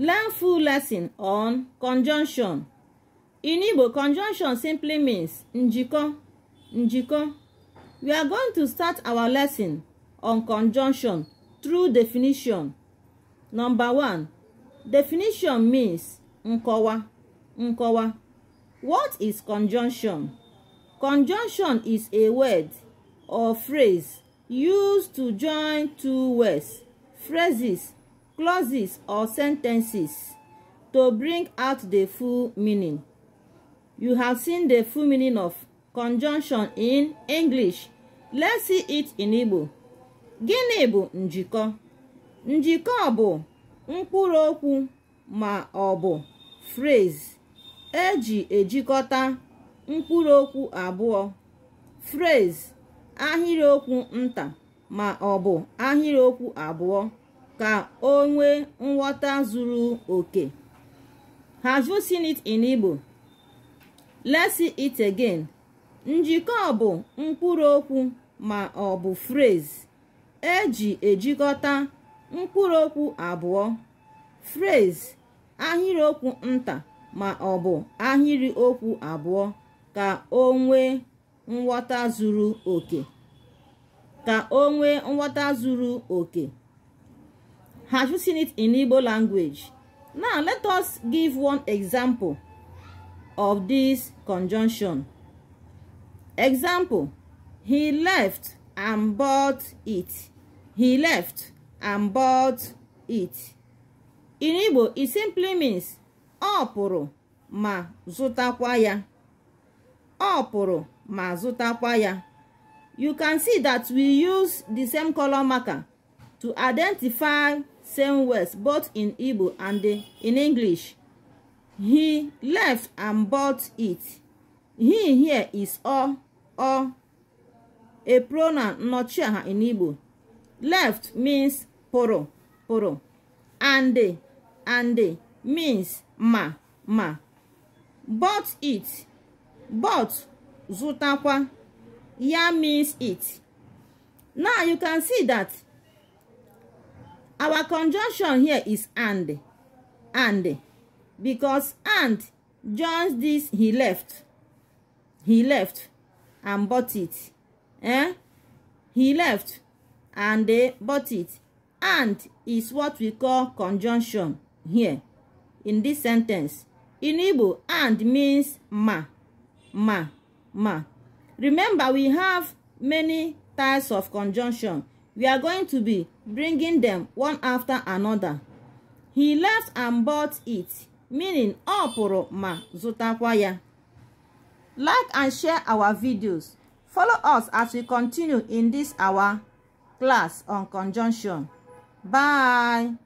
Learn full lesson on conjunction. In Igbo, conjunction simply means njiko, njiko. We are going to start our lesson on conjunction through definition. Number one, definition means nkọwa, nkọwa. What is conjunction? Conjunction is a word or phrase used to join two words, phrases, clauses or sentences to bring out the full meaning. You have seen the full meaning of conjunction in English. Let's see it in Igbo. Gịnị bụ njikọ? Njikọ bụ mkpụrụ okwu ma ọ bụ phrase eji ejikọta mkpụrụ okwu abụọ phrase ahịrịokwu nta ma ọ bụ ahịrịokwu abụọ ka o nwee nghọta zuru oke have you seen it in Igbo let's see it again njikọ bụ mkpụrụ okwu ma ọ bụ phrase eji ejikọta mkpụrụ okwu abụọ phrase ahịrịokwu nta ma ọ bụ ahịrị okwu abụọ ka o nwee nghọta zuru oke ka o nwee nghọta zuru oke Have you seen it in Igbo language? Now, let us give one example of this conjunction. Example, he left and bought it. He left and bought it. In Igbo, it simply means ọ pụrụ ma zụtakwa ya. ọ ma zụtakwa ya. You can see that we use the same color marker to identify same words both in Igbo and in English. He left and bought it. He here is ọ ọ a pronoun not aha in Igbo. Left means poro, poro, and and means ma ma. Bought it bought zụtakwa ya means it. Now you can see that our conjunction here is and and because and joins this he left he left and bought it eh he left and they bought it and is what we call conjunction here in this sentence in Igbo and means ma ma ma remember we have many types of conjunction We are going to be bringing them one after another. He left and bought it, meaning ọ pụrụ ma zụtakwa ya. Like and share our videos. Follow us as we continue in this our class on conjunction. Bye.